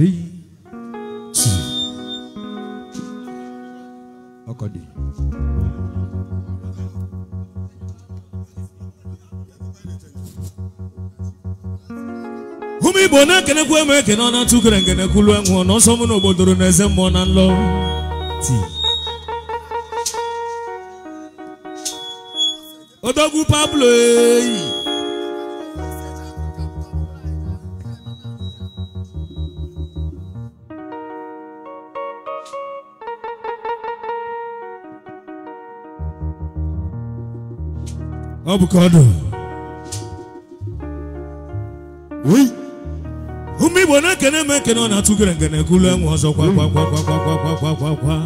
eiti ọkọdị igbo na-ekenekwu eme ekene ọ na-atụ ukere nkenekwulu enwụ na ọsọ mụ na obodoro na eze mmụọ na nlọ odogwu pablo eyi ọ bụ ka ọ dụ ụmụ Igbo na-ekene eme ekene ọ na-atụ gere ngene gụlụ enwe ọzọ kwa kwa kwa kwa kwa kwa kwa kwa kwa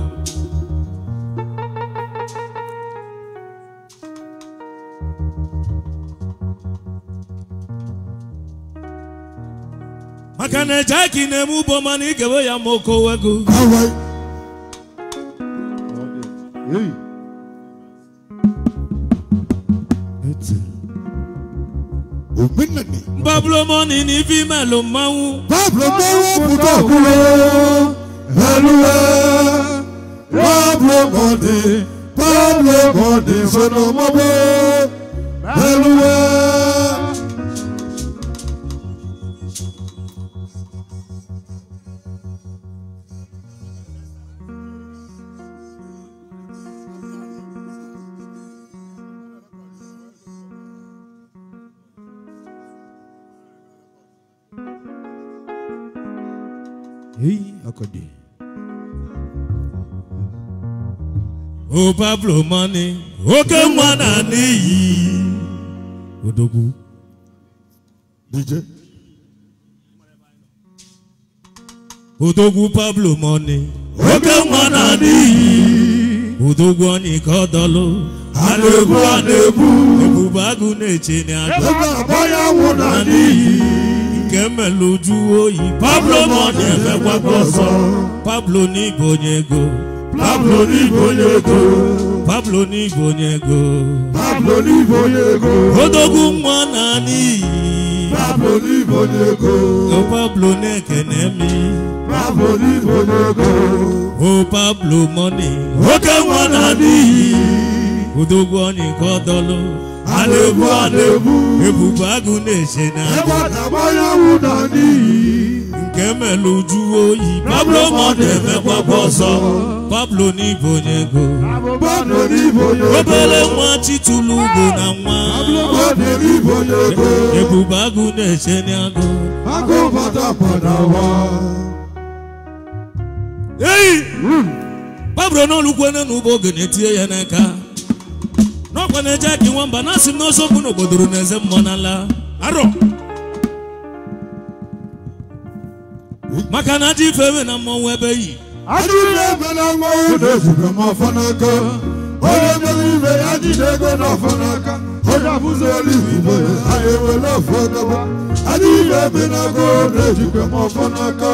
maka na ejeki na-eme ugbo mana ị gewe ya ma oke owego ti òmí nìní. bábúlọ́mọ́ ni ní fíìmẹ̀ ló máa ń. bábúlọ́mọ́ kúndọ̀ kúrò ẹlúwẹ́ bábúlọ́mọ́ ni bábúlọ́mọ́ ni sọ̀nà mọ́bọ́ ẹlúwẹ́. bụ Pablo Mani oke nwa na n'iyi odogwu DJ odogwu Pablo Mani oke nwa na n'iyi odogwu onye ka ọ dọlụ a na-egbu a na na-eche n'iyi nke mmelụ Pablo Mani emekwa ọzọ Pablo n'igbo onye ego Pablo n'igwe onye ego Pablo n'igwe onye ego Pablo n'igwe onye ego odogwu nwa na n'iyi Pablo n'igwe onye ego o Pablo na-ekene mi Pablo n'igwe onye ego o Pablo mọni oke nwa na n'iyi odogwu onye nke ọdọlụ alebụ alebụ ebube agụ na-eche na ebe ọ na-agbanye anwụ na n'iyi nke melu uju oyi pablo ma ọ ọzọ pablo n'ibo nye ego obere nwa chitulu ugbo na nwa ebube agụ na-eche n'agụ eyi hmm. pablo n'olukwenye na ugbo oge na ya n'aka n'ọkwa na-eje aka nwamba na asị m n'ọsọ okwu n'obodoro na eze mmụọ arọ maka na adị ifewe na mmọnwụ ebe yi adị ifewe na mmọnwụ na-ezube m ọfọ n'aka onye mere ibe ya jide ego n'ọfọ n'aka onye abụzi elu igbo ya ewere ọfọ gaba adị ebe na ego na-ezube m ọfọ n'aka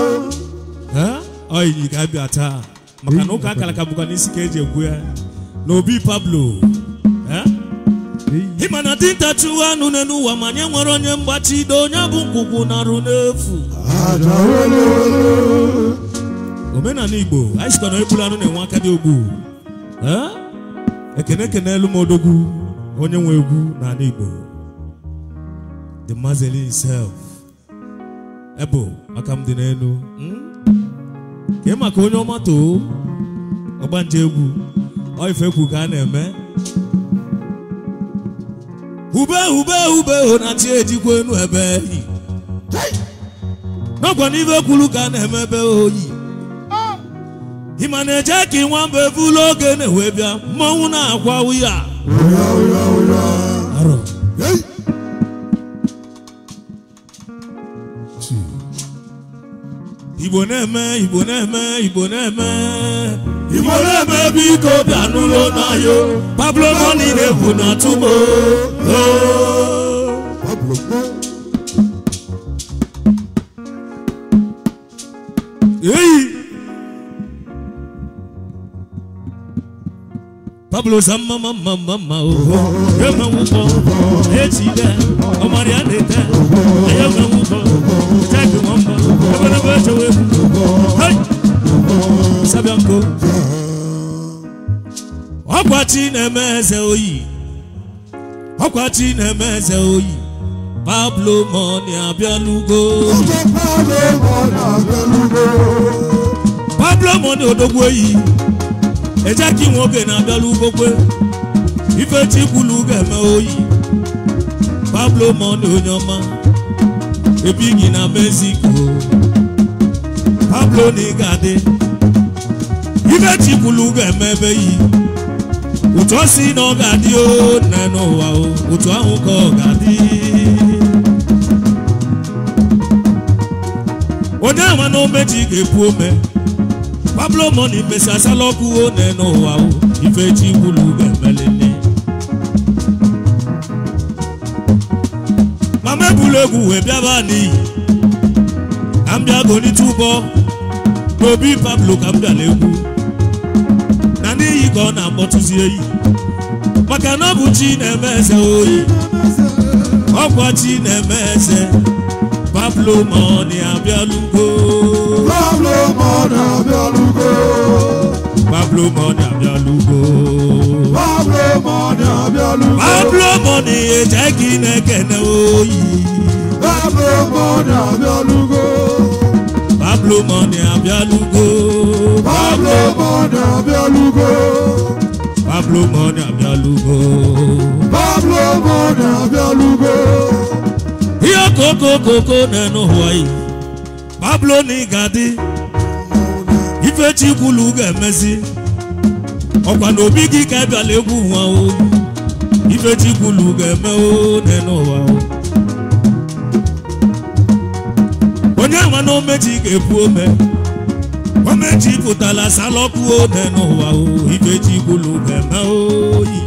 ọyị ga-abịa taa maka na ụka akara ka bụkwa n'isi ka eji ekwu ya na obi pablo ịma na dinta chụwa anụ n'ụwa ụwa ma nye nwere onye mgbachido onye bụ nkwụkwụ narụ n'efu omenala igbo anyị sikwa na egbula anụ na-enwe aka dị ogbu ekene ekene elu m odogwu onye nwe egwu n'ala igbo the mazeli himself ebo aka m dị n'elu hmm? ka ị maka onye ọma too ọgbanje egwu ọ ife egwu ka a na-eme ube ube ube na chi ejikwa enu ebe eyi n'ọkwa n'ibe kwuru ka na-eme ebe oyi ah! ịma na-eje ka nwa mba ebe ụlọ oge na-ewe bịa mmanwụ na-akwa ya. Igbo na-eme Igbo na-eme Igbo na-eme ìmọ̀lẹ́ bẹ́bí kò dànù ló náà yó pablo mọ́ni lè kùnà túbọ̀ ó. Pablo sama mama mama o, ye ma wuko, ye ti dɛ, ɔmɔdi a de tɛ, ye ma wuko, jaabi mɔmɔ, ɛfɛ ne bɛ jɔ weku. Osabianko ọkwa chi na-eme eze oyi ọkwa chi na-eme eze oyi Pablo Money abịalugo Pablo Money odogwu oyi ejeki nwoke na-abịala ife ifechi kwulu ga-eme oyi Pablo Money onye ọma ebighị na Mexico Pablo na ị ga ife chikulu ga-emebe yi ụtụ si na ọ ga o na n'ụwa o ụtụ ahụ ka ọ ga-adị onye ama na omeji ga pablo moni mesi asala ọkụ o na n'ụwa o ife chikulu ga-emelele mama ebula egwu wee bịaba n'iyi ka m bịa gonite ụbọ pablo ka m ọ na-akpọtụzie iyi maka na ọ bụ chi na-eme eze oyi ọkwa chi na-eme eze pablo ma ọ abịalugo pablo ma abịalugo pablo ma eje gị na-ekene oyi pablo ma abịalugo Pablo Money abịalụgo Pablo Money Abialugo! Pablo Money abịalụgo Pablo Money abịalụgo ihe koko koko na-enu Hawaii Pablo na ịgadị ife chikwulu ga-emezi ọkwa na obi gị ka ịbịala egwu nwa o ife chikwulu ga-eme o na onye nwa na omeji ga-ebu ome omeji pụtara salọkụ ode n'ụwa o ifeji gbulu ga-eme oyi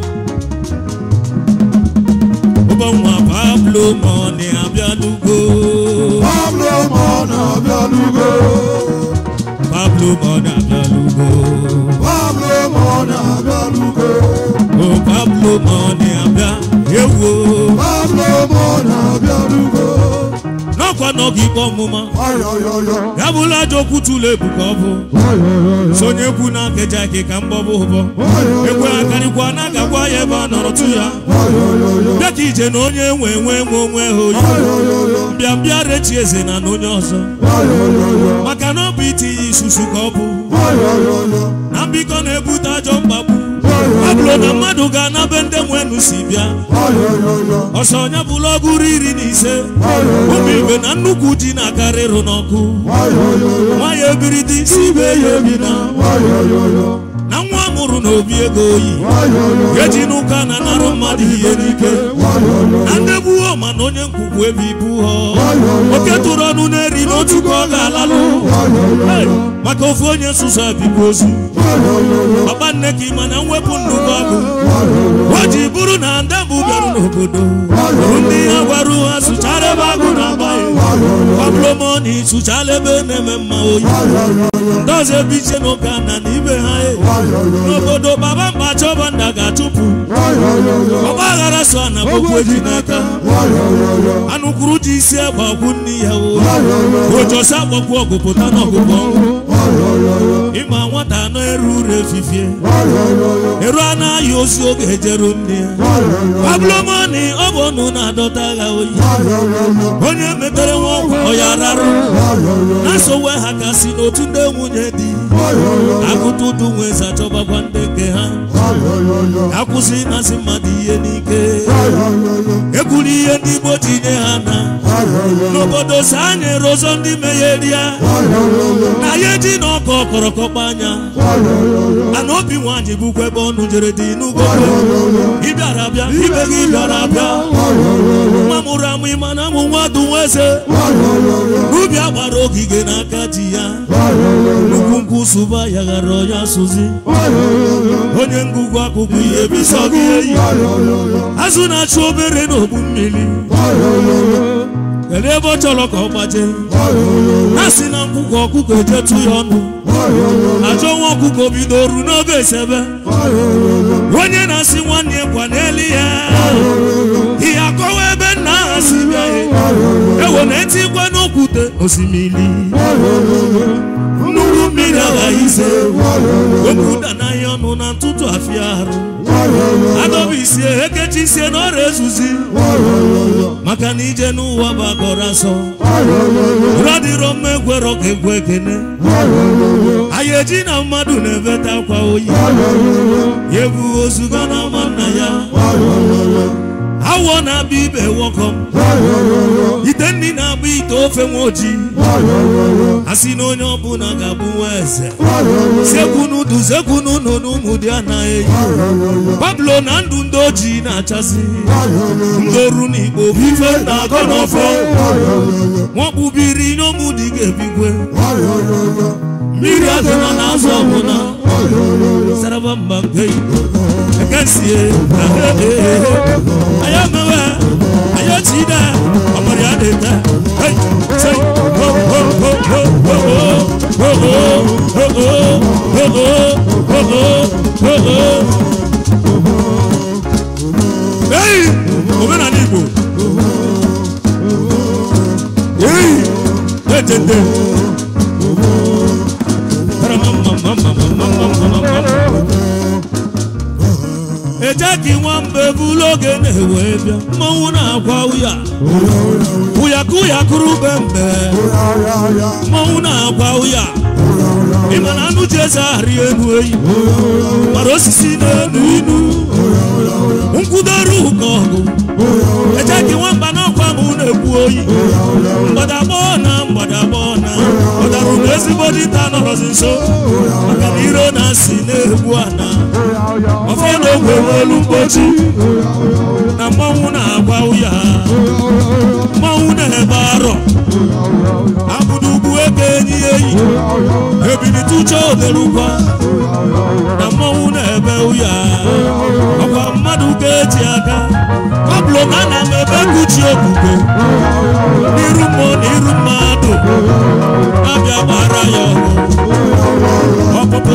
ụbọnwa pablo mọni abịalugo pablo mọni abịalugo pablo mọni abịalugo pablo mọni abịalugo o pablo mọni abịa ewo pablo mọni abịalugo nọ n'oge ikpe ọmụma ya bụla ajọ okwu tụlụ ebu ka ọ bụ sonye ekwu na nkeji ike ka mgbọbụ ụbọ ekwe akarịkwa na agakwa ya ebe a nọrọ tụ ya bịa ka ije na onye nwe nwe nwee onwe ha oyi mbịa mbịa rechi eze na na onye ọzọ maka na ọ bụ itinye isusu ka ọ bụ na mbikọ na-ebute ajọ mkpagbu obodo mmadụ ga-anabe ndị nwenu si bịa ọsọ onye bụla ọgụrụ iri na ise ụmụ ibe na nnukwu ji na-akarịrụ n'ọkụ nwa ya dị si ibe ya ebina ọrụ na obi ego oyi eji n'ụka na-anarụ mmadụ ihe n'ike na ndegbuo ma na onye nkwukwu ebe ibu ha oke tụrụ ọnụ na-eri n'otu ka ọ ga-alalụ maka ofu onye nsuso abịbụ ozu papa nne ka ịma na mwepụ nnukwu ọgụ o ji bụrụ na ndebụ bịarụ n'obodo ndị ha gwara ha sụchara ebe agụ na-agba ya pablo moni sụchala ebe na-eme mma oyi ndazi ebe iche na ụka na n'ibe ha e. n'obodo baba mba chọba nna ga achụpụ ọgba aghara so na gbokwu eji n'aka anụkwuru ji isi agbakwu nne ya ojosi agbakwu ọgụ pụta n'ọgụgụ ịma nwata na eru uru efifie eru anaghị ozu oge ejeru nne ya ọ bụ ọnụ na-adọta agha oyi onye metere nwa ọgwụ ya rarụ na sowe ha ka si n'otu ndị nwunye di akụta ụdụ nwezi achọbakwa ndị nke ha akwụsị ịmasị mmadụ ihe n'ike ekwuru ihe ndị Igbo ji nye ha na n'obodo si anya erozo ndị ya. na ya eji na ọkọ kọrọkọkpa anya ana obi nwanyị bụkwa ebe ọnụ jere dị n'ugbo ịbịara abịa ibe gị bịara abịa nwa mụrụ amụ ịma na amụ nwa dụ nwa eze n'ubi agbara ogige n'aka di ya nnukwu nkwụ sụba ya ghara ya sụzi onye ngụgụ akụkụ ihe bisọ gị eyi azụ na-achụ obere n'ogbu mmiri kedu ebe ọ chọrọ ka ọ gbaje na si na nkwụkwọ ọkụkọ ejetu ya ọnụ ajọ nwa ọkụkọ bidoro n'oge esebe onye na-asị nwanne ya gwa n'elu ya ihe akọwa ebe nna ha si bịa ewe na-eti n'okwute osimiri nnukwu mmiri aghaghị ise okwuda n'ahịa ọnụ na ntụtụ afia arụ adọba isie ekechi sie na ọrịa ezuzi maka na ije n'ụwa bụ akọrọ asọ ụra dịrọ mma ka egwe ekene ihe na mmadụ na-eveta akwa oyi ya ebu ozuga na ama nna ya awọ na-abịa ibe wọkọ ite nri na-agba ite ofe nwa ojii asị na onye ọbụla ga-abụ nwa eze sekwunu du sekwunu nọ n'ụmụ dị anaghị eyi pablo na ndụ ndị ojii na-achasị ndị oru na igbo ife na-akọ n'ọfọ nwakpubiri n'ụmụ dị ga-ebikwe Miracle na n'azọ ọbụna Saraba mba mbe Ekesie Ayo mewe Ayo chida Ọmọdé adeta Hey, say Ho, ho, ho, ho, ho, ho Ho, ho, ho, ho, ho, ho, ho, ho, ho Hey, omenala Igbo Hey, etete elu oge na-ewe bịa mmanwụ na-agwa ụya ụyakụ ụyakụrụ be mbe mmanwụ na-agwa ụya ịma na anụ ji eze ahari elu eyi gbara osisi n'elu inu nkwudoro ụka ọgụ eje gị nwamba n'ọkwa m na-ekwu oyi mgbadagbọ na mgbadagbọ na ọ darụ m ezigbo dịta nọrọzi nso maka na ire ya si na-egbu ana ọfọ na ogwere olu mgbochi na mmanwụ na-agba ya mmanwụ na-ebe arọ abụdugbu ebe enyi enyi Ebili uche obere na mmanwụ na-ebe ụya ọkwa mmadụ ga-eji aka ọbụlụ na ana m ebe kuchi okwukwe n'iru mmụọ na iru mmadụ abịa gbara ya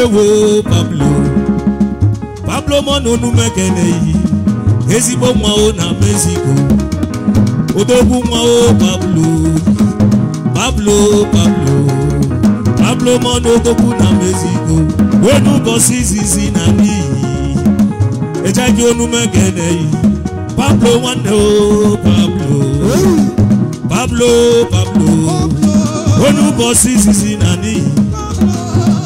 ewo pablo pablo mononumekelehi ezigbo nwa o na mexico odogwu nwa o pablo pablo pablo pablo monodogwu na mexico wee n'ụbọchị izizi na n'iyi ejeghị onumekelehi pablo nwanne o pablo pablo pablo onye ụbọchị izizi na n'ihi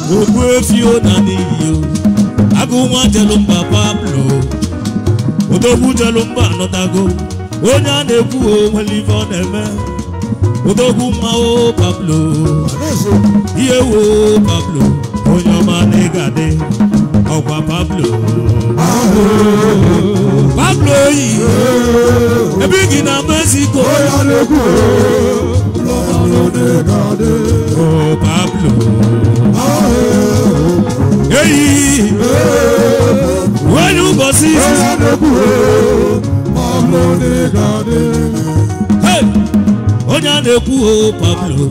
Ogbe Fiona n'iyo agụ nwa jelumba Pablo odogwu jelumba anọtago onye a na-ekwu onwere ife ọ na-eme odogwu mma o Pablo ihe wo Pablo onye ọma na ịga dị ọkwa Pablo Pablo yi ebe gị na Mexico Oh Pablo eyi onye ụbọchị izizi onye a na-ekwu oh, Pablo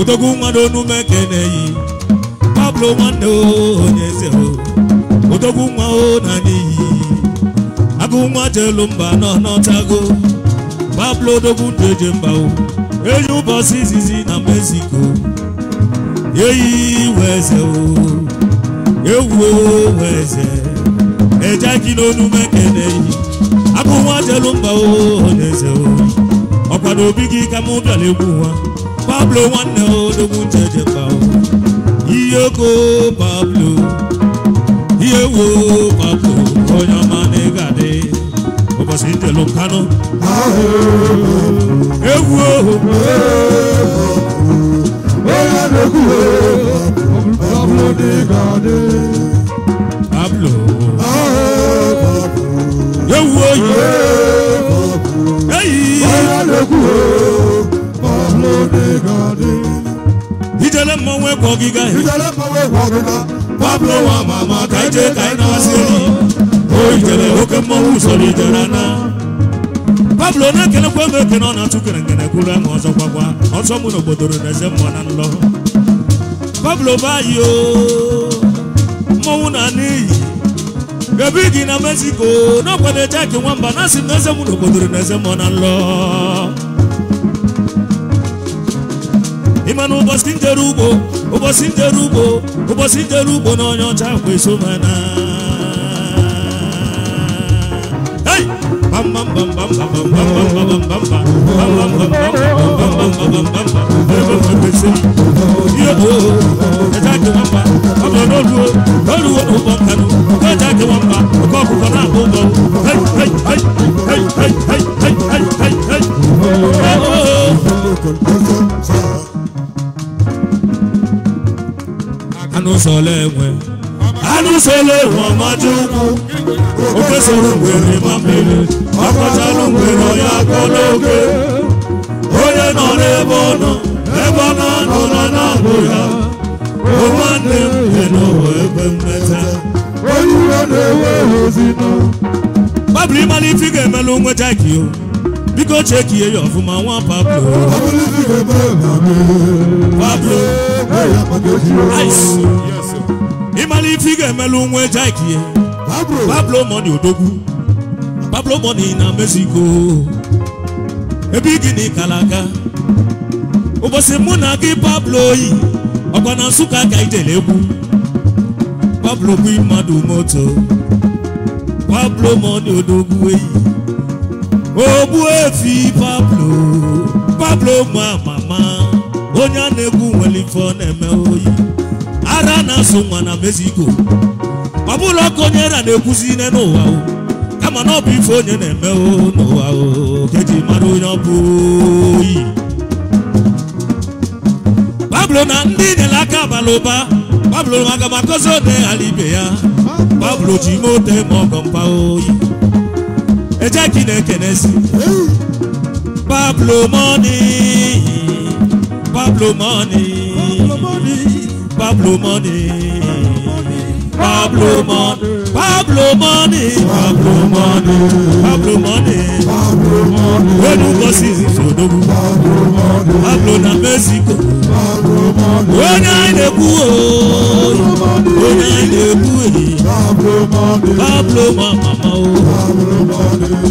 odogwu nwa n'onume ka na Pablo nwanne oh, onye eze oh. odogwu nwa o na n'iyi agụ nwa jelu mba nọ n'ọchago Pablo odogwu ndụ eje mba enyi ụbọchị izizi na Mexico eyi iwe eze o ewuwe eze eje gị n'onu mekene yi abụ nwa jelu mba eze ọkwa na obi gị ka mụ bịara egwu nwa pablo ko pablo ihe wo pablo onye ọma na ị ga-adị ụbọchị njelu nkanụ egwu ohu onye Pablo de Gade. Pablo. Pablo. oyi. Ahe Pablo. Eyi. Bọ́lá lóku o. Pablo de Gade. Ìjẹlẹ mọ̀wé kọ gíga Pablo wa O oke Pablo na-ekele kwa ebe ekene ọ na-atụ kere nkene kwuru ahụ ọzọ gwagwa ọsọ mụ n'obodo na eze mmụọ na nlọ Pablo Bayo mmanwụ na n'iyi ebe gị na Mexico n'ọkwado jeki nwamba na asị na eze m n'obodoro na eze m na nlọ ịma na ụbọchị njere ugbo ụbọchị njere ugbo ụbọchị njere ugbo na onye ọcha kweso mana Anu sọlẹ̀ wẹ̀ anisele wọmọdúnkù òkèsèrè wèrè mọmìlì ọkọtàlù wèrè ọyà kọlọgẹ onye nọ n'ebe ọnọ ebe ọ na-anọ na na-abụ ya nwanne m dị n'ụwa ebe mmeta onye iwe na-ewe ozi nọ Pablo ịmala ife ị ga-emelụ nweta gị o biko chekie ya ọfụma nwa Pablo Pablo Ice imali fige melu nwe jaikie pablo pablo money odogwu pablo money na mexico Ebi gini kalaka ụbọchị mụ na gị pablo yi ọkwa na nsụka ka idele egwu pablo bụ mmadụ moto pablo money odogwu eyi ogbu efi pablo pablo ma mama onye a na-egwu nwere na-eme oyi ara na-asụ nwa na Mexico ọ bụrụ ọkụ onye ra na-ekwuzi ine n'ụwa kama na ọ bụ ife onye na-eme n'ụwa keji mara onye ọ bụ oyi Pablo na ndị nyere aka abalị ụba Pablo maka makọzi ode ghara ibe ya Pablo ji ime ote ma ọgọ mpa oyi ejeki na-ekenesi Pablo money Pablo Pablo money, Pablo money, Pablo money, Pablo money, Pablo money, Pablo money. When you go see Sodobu, Pablo money, Pablo na Mexico, Pablo money. When I ne kuo, when I ne kuo, Pablo money, Pablo mama o,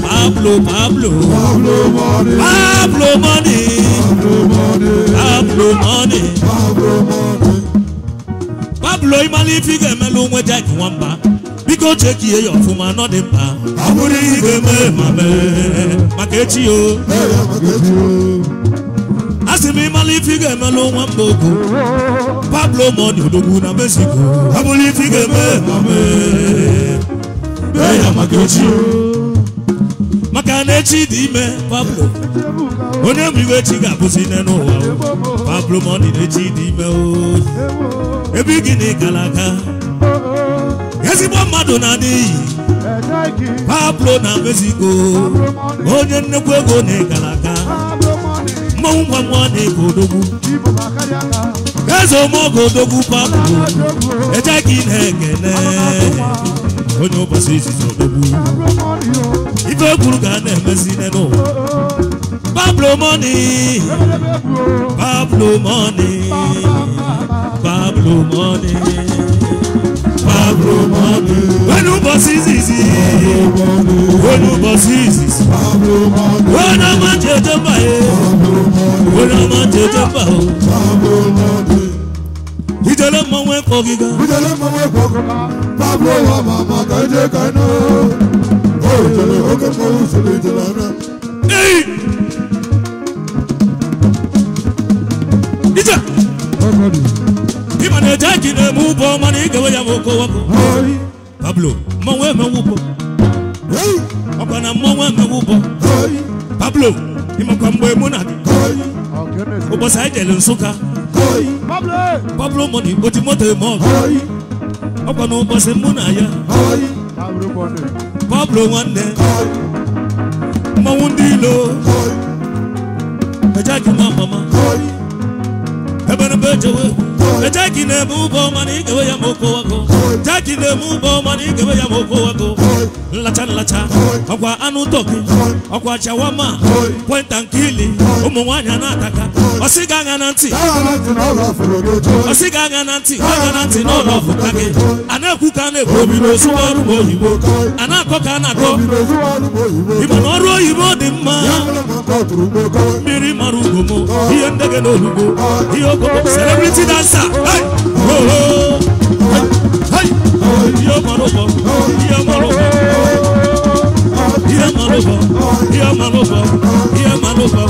Pablo Pablo, Pablo money, Pablo money, Pablo money, Pablo money. ụlọ ịmala ife ị ga-emelụ onwe Jack Nwamba biko chekie ya ọfụma nọ dị mkpa ọ bụrụ ihe ị ga-eme ma mee maka echi o a sị m ịmala ife ị ga-emelụ nwamba ogo Pablo Money odogwu na Mexico ọ bụrụ ife ị ga-eme ma mee mee ya maka echi o maka na echi ime Pablo onye bụ iwe chi ga-abụzi nne n'ụwa Pablo Money na echi dị ime o ebe gị na ịgara aga ezigbo mmadụ na n'iyi Pablo na mezigo onye nnekwu ego na ịgara aga mmanwụ ngwa ngwa na-ego odogwu eze omeoge odogwu Pablo eje gị na-ekene onye ụbọchị izizi odogwu ife ekwuru ga a na-emezi n'ụwa Pablo money, Pablo money, Pablo money, Pablo money. When you boss is easy, when you boss is easy, Pablo money. When I'm on the buy, when I'm on the buy, Pablo money. tell Ìjọba mọ̀ wẹ́ fọ́ gíga. Ìjọba mọ̀ wẹ́ fọ́ gíga. Pablo wa màmá kàdé kaná. Oh, ìjọba ó kẹ́ fọ́ òṣèlú ìjọba náà yìí. Ije. Ima na eje ki na emu ụbọ mana ị gawe ya ma oko wapụ. Pablo, mmanwụ emewu ụbọ. Ọkwa na mmanwụ emewu ụbọ. Pablo, ịmakwa mgbe mụ na gị. Ụbọchị anyị jere Nsụka. Pablo mọ na igbochi moto mo. ọgụ. Ọkwa na ụbọchị mụ na ya. Pablo nwanne. mọ̀wú ndílò ẹ̀já jùmọ̀ mọ̀mọ́ ẹ̀bẹ̀rẹ̀ bẹ́ẹ̀ jẹ́wọ́. Jackie na emu bo na emu ya moko wako Nlacha nlacha Ọkwa anụ Ọkwa jawama Kwenta nkili Ụmụ nwaanyị na-ataka Ọsị ga aga na ntị Ọsị ga na ntị ntị n'ụlọ ka gị ekwu na A na-akọ ka a na-akọ Ịma na ọrụ oyibo dị mma turugboko mmiri mara ugomo ihe ndege na olugo ihe celebrity dancer ihe mara ụbọ ihe mara ụbọ ihe mara ụbọ ihe mara ụbọ ihe mara ụbọ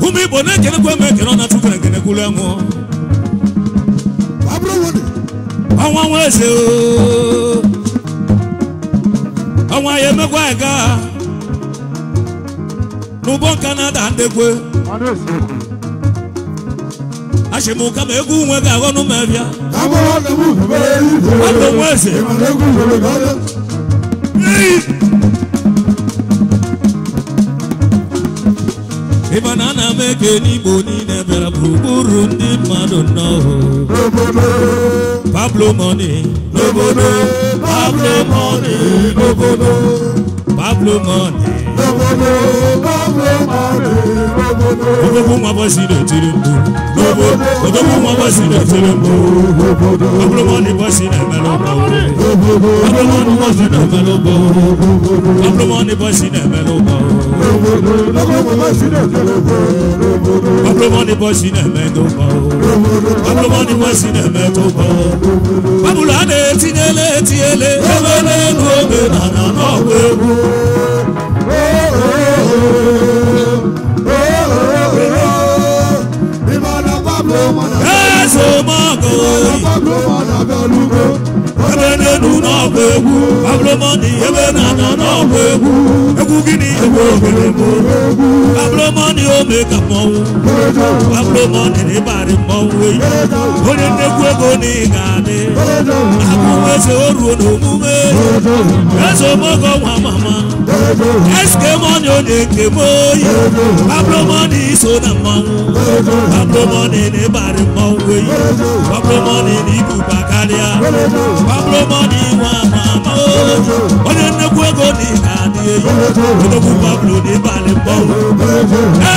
ụmụ igbo na-ekenekwa na-atụ kere ekene kwulu enwụọ ọnwa nweze ọnwa ya emekwa aga n'ụbọ nka na-ada ndekwe achị m ụka ma egwu nwe ga-aghọ n'ụmụabịa abụ nweze ịba na ana m eke n'igbo niile bịara gburugburu ndị mmadụ n'ọhụụ Pablo money, no bono. Pablo money, no bono. Pablo money, no bono. Pablo money. Ogogo mwa basi do tirimbo. Ogo ogogo mwa basi do tirimbo. Abromo ni basi na melombo. Abromo ni basi na melombo. Abromo ni basi na melombo. Abromo ni basi na melombo. Abromo ni basi na melombo. Babula de tinele tiele. Ewele ngobe na na na wewu. Oh oh oh. Abúlọ́mọ́gò Abúlọ́mọ́nàbẹ́lúgbò Ebenenu náà kò egwu Abúlọ́mọ́ni Ebenana náà kò egwu Egwu gịnị egwu ogere mụ Abúlọ́mọ́ni ome ka mmọnwụ Abúlọ́mọ́ni n'ịbarị mmọnwụ eyi Onye nnekwu ego na ị ga-adị Abụrụ eze oruo n'omume Eze omego nwa mama eske mọni o de ke moye pablo mọni so na mọnwu pablo mọni ne bari mọnwu eyi pablo mọni ni kuba karịa pablo mọni nwa ma ma o onye nnekwu ego ni na. Odogwu Pablo ní balẹ̀ pọ̀.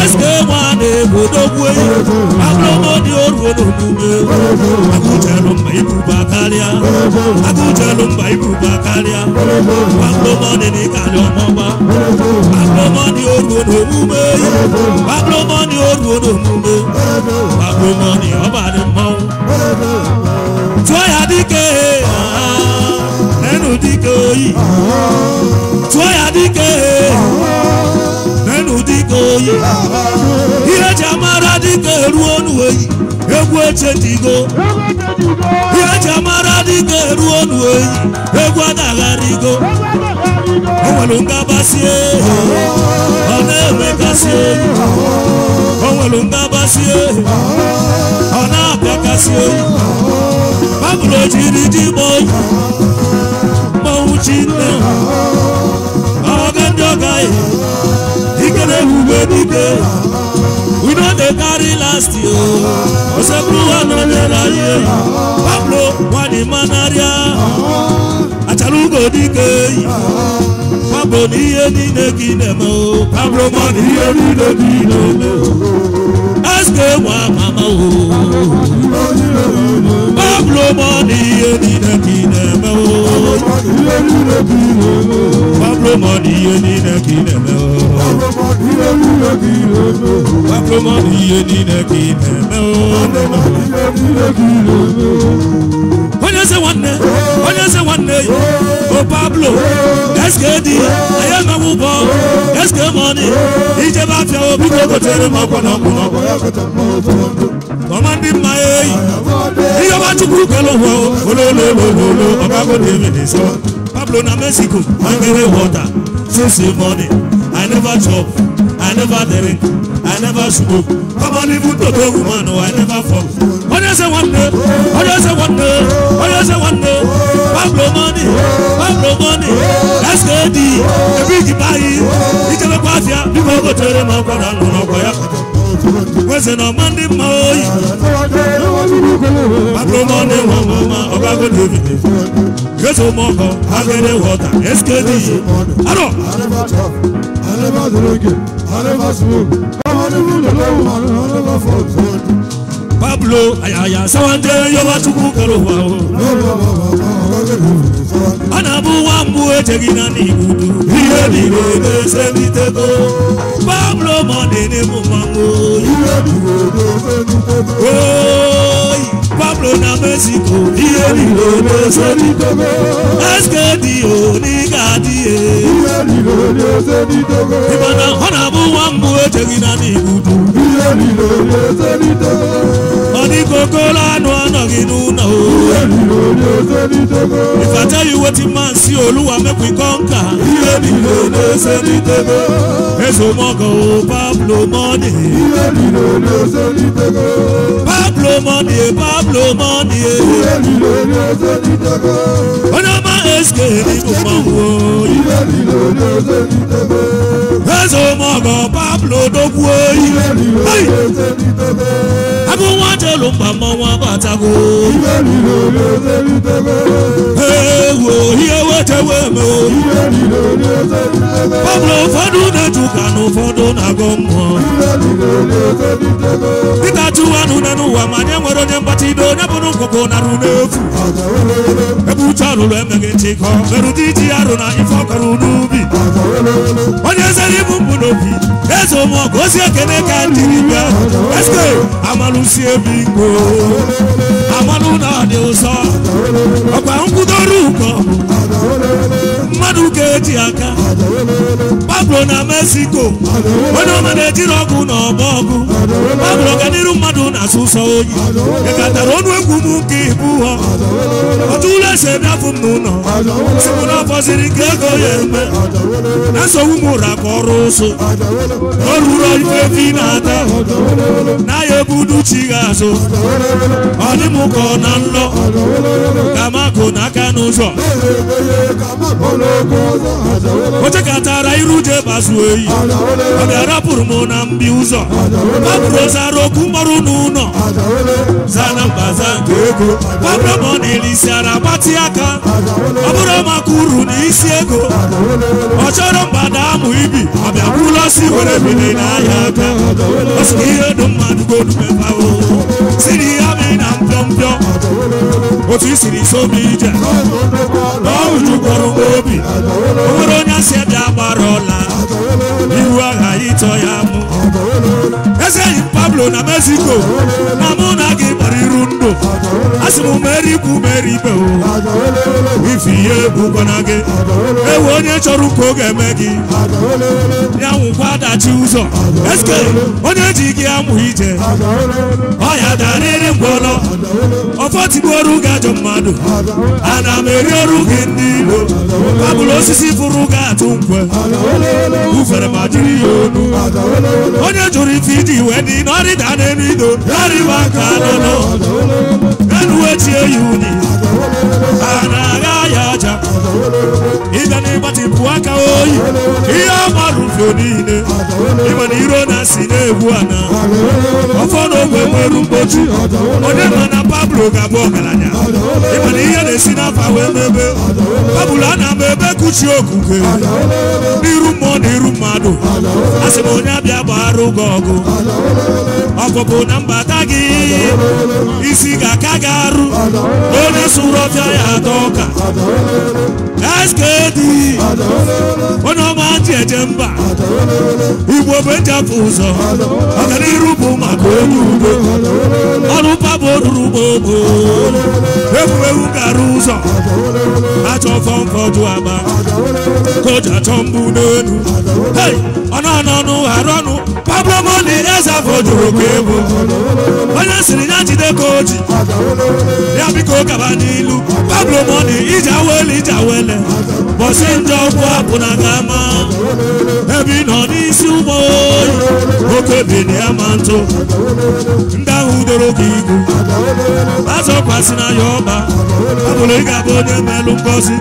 SK1 Odogwu eyi. Agbomo di oru Odogwu gbé. Agújẹ̀lú mba ibùba kárìá. Agújẹ̀lú mba ibùba kárìá. Agbomo di ní kàlẹ́ ọmọ wa. Agbomo di oru Odogwu gbé. Agbomo di oru Odogwu gbé. Agbomo di ọba ni mọ́. Tọ́yà díkẹ́. Ẹnu díkẹ́ oyi dike nenu dike oyi ihe ji amara dike ruo nuoyi egwu eche digo ihe ji amara dike ruo nuoyi egwu agagharigo o nwere ngabasị ehi ọ na-enwegasị ehi o nwere ngabasị ehi ọ na-abịagasị ehi babụrụ jiri ji gba oyi we no dey carry last year osekuru no dey láyé pablo wani manaria achalugo dike pablo n'ihe niile ka ị na-eme o pablo ma n'ihe niile ka ị na-eme o eske nwa mama o mọ́ni eninẹ́kinẹ́ mẹ́wọ́. Pablo mọ́ni eninẹ́kinẹ́ mẹ́wọ́. Pablo mọ́ni eninẹ́kinẹ́ mẹ́wọ́. Onye se nwanne, onye se nwanne yi, o Pablo, eske di, eye ma mụ bọ, eske mọni, ijebe afia obi ka o gotere m ọkwa na ọkwa na ọkwa ọmọ bí ma ye yìí iye bá tukuru wọ olólùlùlù ọba kò dé mi sọ pablo na mexico i carry water since morning i never chop i never drink i never smoke ọmọ ní fún tòtò woman o i never fall ọjọ́ ṣe wọ́n dé ọjọ́ ṣe wọ́n dé ọjọ́ ṣe wọ́n dé pablo money pablo money skd ebi ìjìbá yìí ìjẹ́bẹ́ pàṣẹ bí mo kò tẹ̀lé mọ́ kọ́ra lọ́nà ọkọ̀ yàtọ̀. weze na ọma ndị mma oyi mabụrụ na ọ na-ewe ọmụma ọbago david gezo mọkọ agere wọta eskedi arọ smoke, Pablo ayaya sawande yobatuku kalowa o. anabu wambu etegina nigudu iye nile bese mitego Pablo mọde ne mu mango. iye nile bese mitego. Pablo na Mexico. iye nile bese mitego. Eskedi onigadiye. iye nile bese mitego. Ìbàdàn ọ̀nàbù wambu etegina nigudu. iye nile bese mitego ní kókó lánàá ọ̀nà inú náà o. Iye mi ló ní ní tókó. If I tell you wetin man see Olúwa make we conquer. Iye mi ló ní ose ní tókó. Èso mọ́gàn o Pablo Mọ́ni. Iye mi ló ní ní tókó. Pablo Mọ́ni Pablo Mọ́ni. Iye mi ló ní ose ní tókó. Ọ̀nà máa eske ní mo máa wọ. Iye mi ló ní ní tókó. Èso mọ́gàn Pablo Dókúó. Iye mi ló ní ose ní tókó. Abúwọ́n. olu mba pa mọ́ wọn bàtàkó. ìwé mi ewo iyewe tewe mo. ìwé pablo ju dịka tụwanụ na nụwa ma nye nwere onye mgbatị ido onye bụrụ ngwụgwụ narụ n'efu. ebucha alụlụ emeghị nchịkọ merụ dị arụ na ife ọkọrọ n'ubi. onye zere ibu mbụ n'obi eze ụmụ ọgụ ozi ekene ka ndị bịa. eske ebi igbo amalụ ụzọ ọkwa nkwụdoro ụkọ mmadụ ga-eji aka bụrụ na mexico onye ọma na-ejiri ọgụ na ọba ọgụ ọ bụrụ ka n'iru mmadụ na-asụ oyi ịkatara ọnụ egwu m nke ibu ha otu ụlọ esi ebiafụ m n'ụlọ sikwu na ọfọsiri nke ego ya eme na nsogbu m ụra ka ọrụ ụsụ ọrụ ụrọ ifefi na-ata na-aya ebudu chi ga azụ ọ dị m ka ọ na nlọ kamakụ n'aka n'ụzọ iru ebe zuo oyi ọ bịarapụrụ m na mbi ụzọ gbapụrụ zara okwu mọrụ n'ụlọ zana mbaza nke ego gbapụrụ m ọ na-elisi ara gbatị aka ọ bụrụ maka uru na isi ego ọ chọrọ mgbada amụ ibi ọ bịakwula si were bili n'ahịa aka ọ ihe dị mmadụ godu mebawo si na ihe amị na mpịọmpịọ otu isiri sobi ije n'ọjụ kpọrọ obi onwere onye asị ada gbara ọla ihu aghaghị ịtọ ya mụ eze yi pablo na mexico na mụ na gị gbara iru ndụ asị m mere ikwu mere ibe ife ihe bụkwana gị ewe onye chọrọ ụka ọ ga-eme gị ya nwụkwa adachi ụzọ eske onye ji gị amụ ije ọya darịrị ngwọrọ ọfọtigbu ọrụ gị ajọ mmadụ ana m eri ọrụ gị ndị ilo kabụlụ osisi fụrụ gị atụ nkwe bufere ma jiri ya onu onye jụrụ ife iji iwe dị n'ọrịda n'elu ido arịba ka anọ elu eji eyi unyi a na-agha ya aja ịbịa n'ịgbatịpụ aka oyi ihe ọ marụ obodo niile ịma na iro na si na-egwu ana ọfọ na ogwe nwere onye ma na pablo ga-abụ ọgaranya ịma na ihe na-esi n'afa wee mebe pablo a na-ama ebe kuchi okuke n'iru mmụọ na iru mmadụ a sị m onye abịa gbaghara ụgọ ọgụ ọpụpụ na mbata gị isi ga-aka gị arụ onye sụrụ ọfịa ya atọ ọka skd onye ọma ji eje mba igbo bejapụ ụzọ ọganiru bụ maka onye udo ọrụ pabụ ruru gbogbo egwuregwu gara ụzọ achọ fọmfọdụ aba koja chọ mbụ n'elu ọnụ ọnụ arụ ọnụ ọbụrụ na Elieza fọdụrụ ka onye siri ya jide ka oji ji ya biko kaba n'ilu pablo moni iji awele ije awele bọsi ndị ọkwụ apụ na kama ebe ị nọ n'isi ụmụ oyi oke bini ya ntụ ndị ahụ doro gị igu azọkwasị na ya ọba abụrụ ị ga-abụ onye melụ ngozi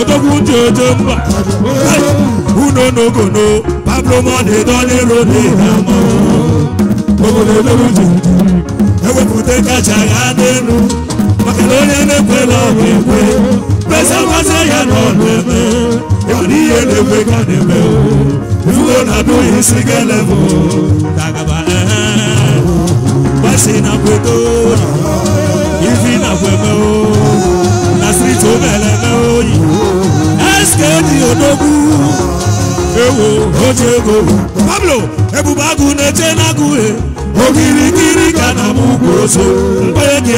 odogwu dị ojo mba unu n'ogono pablo moni dọlịrụ n'ọdịnihu obodo ebere uju ewepụta kacha ya n'elu maka na onye na-ekwela ọrụ ekwe kpesa mmasị ya na ọnụ eme ịmana ihe na-ekwe ka na-eme ifugo na-abụghị isi galebụ kagaba gbasi na kwedo ifi na kweme na striti omeleme oyi eskedi odogwu ewo oji ego pablo ebube agụ na-eche na agụ he okirikiri ka na m ugwu oso mkpere gị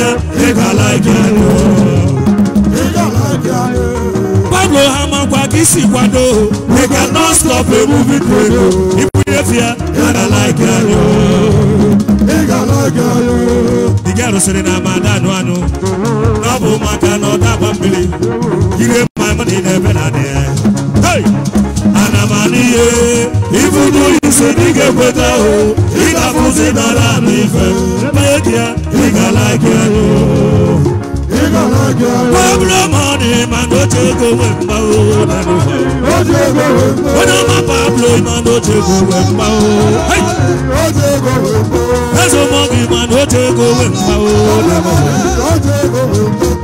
ịgala gị pablo ha makwa ka isi kwado we can not stop a movie credo ibunyefe ya ịgala gị anya dị gị arụsịrị na ama anụ anụ na ọ bụ maka na ọ dagba mmiri ire ma ebe na adị ya ihe big ise dị ga-ekweta ahụ ị ga-afụzi n'ala na like media ị like anya Pablo money man no take away my own When I'm a Pablo, man no take away my own As a monkey man no take away my own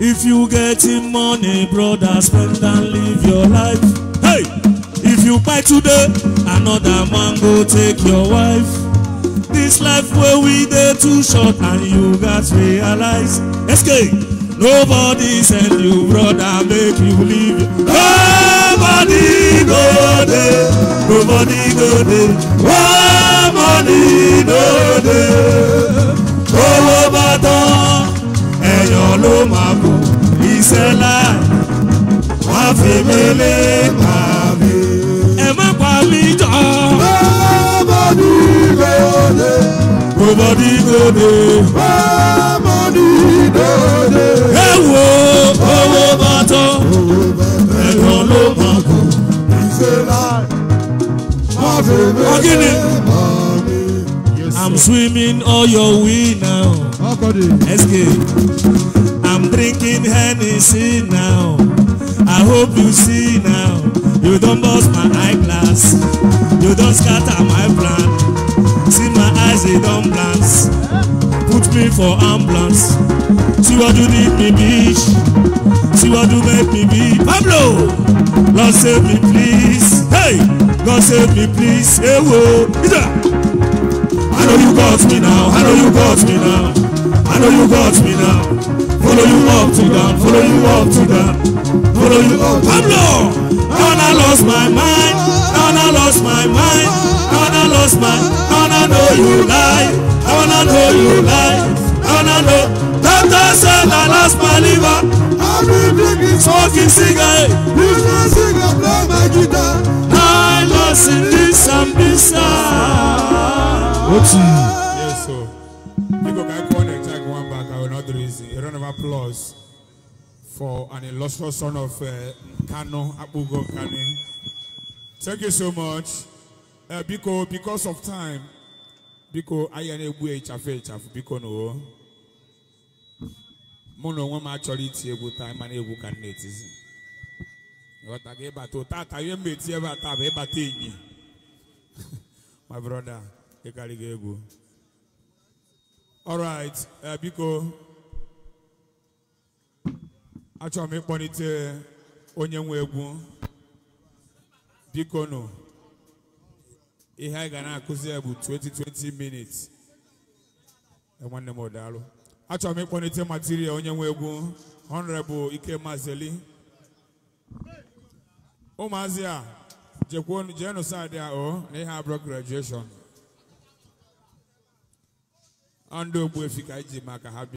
If you getting money brother spend and live your life you buy today another man go take your wife this life where we dey too short and you gats realize escape nobody send you brother make you leave. nobody go dey nobody go dey one money no dey owó bá tán ẹ̀yàn ló máa bọ̀ iṣẹ́ láì wá fi mélé pa. Ọ̀gìnì. I'm swimming all your way now. SK. I'm drinking Hennessy now. I hope you see now. You don't burst my eyeglass. You don't scatter my plan. See my eyes, they don't glance. Put me for ambulance. See what you did me, bitch. See what you make me be. Pablo! Lord save me, please. Hey! God save me, please. Hey, whoa. I know you got me now. I know you got me now. I know you got me now. Follow you up to down. Follow you up to down. Follow you up. Pablo! and I lost my mind, and I lost my mind, and I lost my, and I know you lie, and I know you lie, and I know. Doctor said I lost my liver. I've been drinking smoking cigarette. This one cigar play my guitar. I lost in this and this. What's Yes, sir. You go back one and take one back. I will not do this. A round of applause. for an illustrious son of uh, Kano, Abugo Kane. Thank you so much. Uh, Biko, because of time, Biko, I am a boy, Chafe, Chafe, Biko, no. Mono, one actually, it's a good time, and a good candidate. What I gave back to Tata, you made Tieva Tabe Batini. My brother, Ekaligego. All right, uh, Biko. achọrọ m ịkpọlite onye nwe egwu biko nụ ihe anyị ga na-akụzi ya bụ 2020 minutes e, nwanne m ọdaalụ achọrọ m ịkpọlite material onye nwe egwu bụ ike mazeli ụmụazị a jekwuonu jeenu saadị a o na ihe abụrụ graduation ọ ndị ogbuefi ka iji ji maka ha